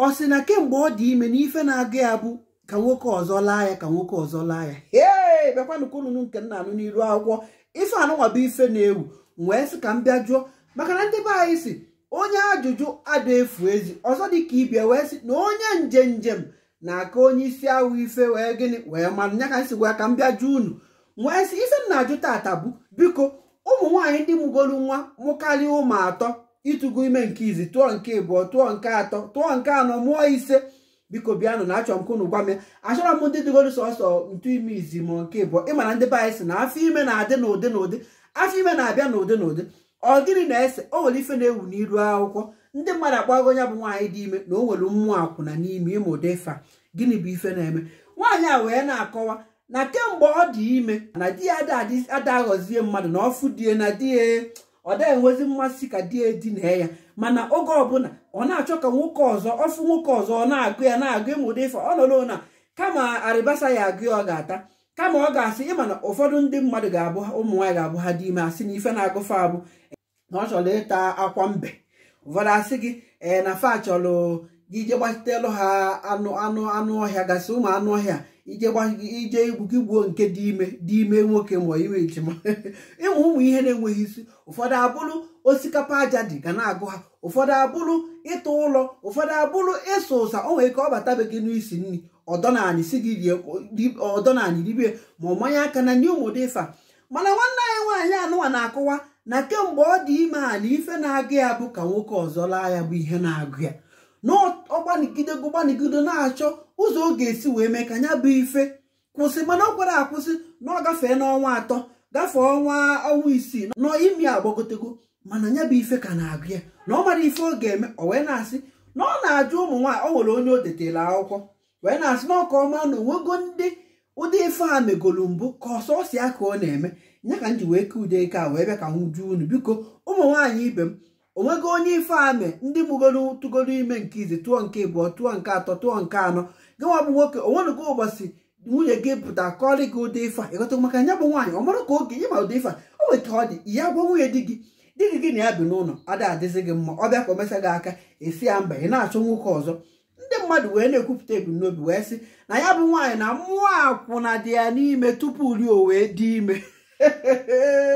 ọ sị na kemgbe ọ dị ime na ife na-aga ya bụ ka nwoke ọzọ laa ya ka nwoke ọzọ laa ya ee bekwanụ ka ụnụnụ nke nna anụ n'iru akwụkwọ ife anụnwa bụ ife na-ewu wee sị ka m bịa jụọ maka na ndị be anyị si onye ajụjụ adụ efu ezi ọzọ dị ka ibia wee sị na onye nje njem na-aka onye isi ahụ ife wee gịnị wee manụ nya ka m si gwa ka m bịa jụọ unu wee sị ife m na-ajụ tata bụ biko ụmụ nwaanyị ndị mụgolu nwa mụkarịa ụmụ atọ ịtụgo ime nke izi tụọ nke ịbụọ tụọ nke atọ tụọ nke anọ mụọ ise biko bịanụ na achọ m ka unu achọrọ m ndị dịgoro sọsọ ntụ ime izi ma nke ịbụọ ị mana ndị be anyị sị na afọ ime na-adị n'ụdị n'ụdị afọ ime na-abịa n'ụdị n'ụdị ọ gịnị na-ese o nwere ife na-ewu n'iru akwụkwọ ndị mmadụ agbago ya bụ nwaanyị dị ime na o nwere mmụọ akwụna n'ime ime ụdị fa gịnị bụ ife na-eme nwaanyị a wee na-akọwa na kemgbe ọ dị ime na di ya adaghọzie mmadụ na ọfụ die na di ya ọ dịghị enwezi mmasị ka di edina ya mana oge ọbụla ọ na-achọ ka nwoke ọzọ ọfụ nwoke ọzọ ọ na-agụ ya na-agụ ịmụda ife ọ nọrọ na kama arịbasa ya agụ ya ọ ga-ata kama ọ ga-asị ịma na ụfọdụ ndị mmadụ ga-abụ ụmụ nwaanyị ga-abụ ha dị ime asị na ife na-agụfe abụ na ọ chọrọ ịta akwa mbe ụfọdụ asị gị ee na fa chọrọ gị je gbatitelụ ha anụ anụ anụ ọhịa gasị ụmụ anụ ọhịa ije igwu gị gbuo nke dị ime dị ime nwoke ma iwe ejima ịmụ ụmụ ihe na-enweghị isi ụfọdụ abụrụ osikapa aja dị ga na-agụ ha ụfọdụ abụrụ ịtụ ụlọ ụfọdụ abụrụ ịsụ ụsa o nwere ka ọ bata gị n'isi nri ọdọnanị si gị rie ọdọnanị ribie ma ọ manye aka na nye ụmụdị ịfa mana nwanne anyị nwaanyị anụwa na-akụwa na kemgbe ọ dị ime a na ife na-agụ ya bụ ka nwoke ọzọ laa ya bụ ihe na-agụ ya gụgbanigide gụgbanigide na-achọ ụzọ ọ ga-esi wee mee ka anya bụ ife kwụsị mana ọ kwara akwụsị na ọ gafee n'ọnwa atọ gafee ọnwa ọnwa isii na imi agbagotego mana anya bụ ife ka na-agụ ya na ọ mara ife ọ ga-eme ọ wee na-asị na ọ na-ajụ ụmụ nwaanyị ọ nwere onye o detela akwụkwọ wee na-asị na ọka ọma na onwego ndị ụdị ife a megolu mbụ ka ọsọ ọsịa ka ọ na-eme ya ka m ji wee kee ude ike a wee bịa ka m juo unu biko ụmụ nwaanyị ibe m onwego onye ife amị ndị mụgoro tụgoro ime nke izi tụọ nke ịbụọ tụọ nke atọ tụọ nke anọ gịnwa bụ nwoke onwenugo ụbọchị nwunye gị pụta kọrị gị ụdị ife ịghọta maka ya bụ nwaanyị ọ mara ka oge nye ma ụdị ife o nwere ka ọ dị ya gwa nwunye di gị dị gị gị na ya bi n'ụlọ ada adịzi gị mma ọ bịa ka o gị aka esi ya mba ị na-achọ nwoke ọzọ ndị mmadụ wee na-ekwupụta ebumnobi wee sị na ya bụ nwaanyị na mmụọ akwụna dị ya n'ime tupu rie o wee dị ime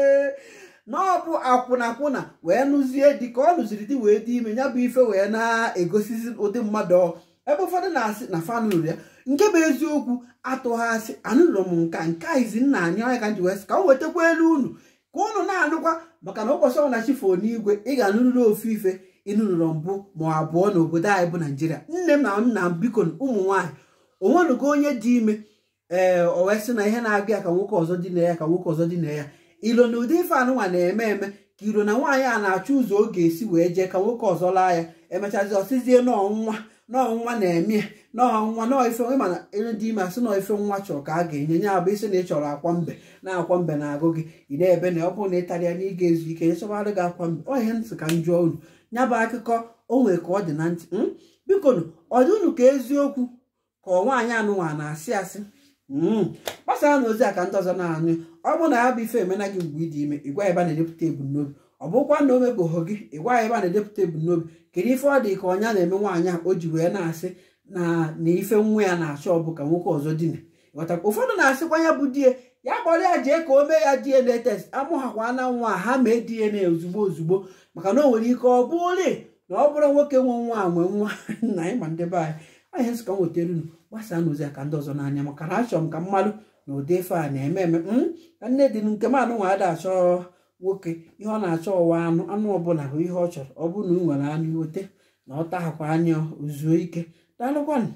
na ọ bụ akwụna wee nụzie di ka ọ nụziri di wee dị ime ya bụ ife wee na-egosizi ụdị mmadụ ebe ụfọdụ na-asị na fanụrụ ya nke bụ eziokwu atụghasị anụrụ m nka nke a izi nna anyị ọnya ka wee sị ka m wetakwa elu unu ka unu na-anụkwa maka na ụbọchị ọbụla chifo n'igwe ị ga-anụrịrị ofu ife ịnụrụrọ mbụ ma abụọ n'obodo anyị bụ naijiria nne m na m na biko ụmụ nwaanyị onwenugo onye dị ime ee o wee sị na ihe na-abịa ka nwoke ọzọ dị na ya ka nwoke ọzọ dị na ya ilo na ụdị ife anụnwa na-eme eme ka iro na nwaanyị a na-achọ ụzọ ọ ga-esi wee jee ka nwoke ọzọ laa ya emechazi ọsịzie n'ọnwa n'ọnwa na-eme n'ọnwa n'ife mana ere dị ime asị nọ nwa chọrọ ka a ga-enye nye abụ isi na ị chọrọ akwa mbe na akwa mbe na-agụ gị ị na-ebe na ọ bụrụ na ịtarịa na ị ga-ezu ike nyechọbarụ gị akwa mbe ọ ihe ntị ka m jụọ unu ya bụ akụkọ o nwere ka ọ dị na ntị hmm? biko nụ ọ dị unu ka eziokwu ka nwaanyị anụnwa na-asị asị Hmm. gbasara na ozi a ka ndị ọzọ na-anụ ọ bụrụ na ya bụ ife emena gị mgbe ị dị ime ịgwa ebe a na-edepụta ebumnobi ọ bụkwa na o mebụghị gị ịgwa ebe a na-edepụta ebumnobi kedu ife ọ dị ka ọnya na-eme nwaanyị a o ji wee na-asị na na ife nwa ya na-achọ ọ ka nwoke ọzọ dina ịghọtakwa ụfọdụ na-asịkwa ya bụ die ya kpọrọ ya jee ka o mee ya DNA test amụghakwa na nwa ha mee DNA ozugbo ozugbo maka na o nwere ike ọ bụ ole na ọ bụrụ nwoke nwe nwa nwe nwa nna ịma ndị be anyị ọhịa nsụka m wetara unu gbasa n'ozi aka ndị ọzọ n'anya maka na achọrọ m ka mmadụ na ụdị ife a na-eme eme ka nne dị nke m anụ nwa achọ nwoke ihe ọ na-achọ ụwa anụ anụ ọbụla bụ ihe ọ chọrọ ọ bụrụ na ị nwere anụ iweta na ọ tahakwa anya ozuo ike daalụkwanụ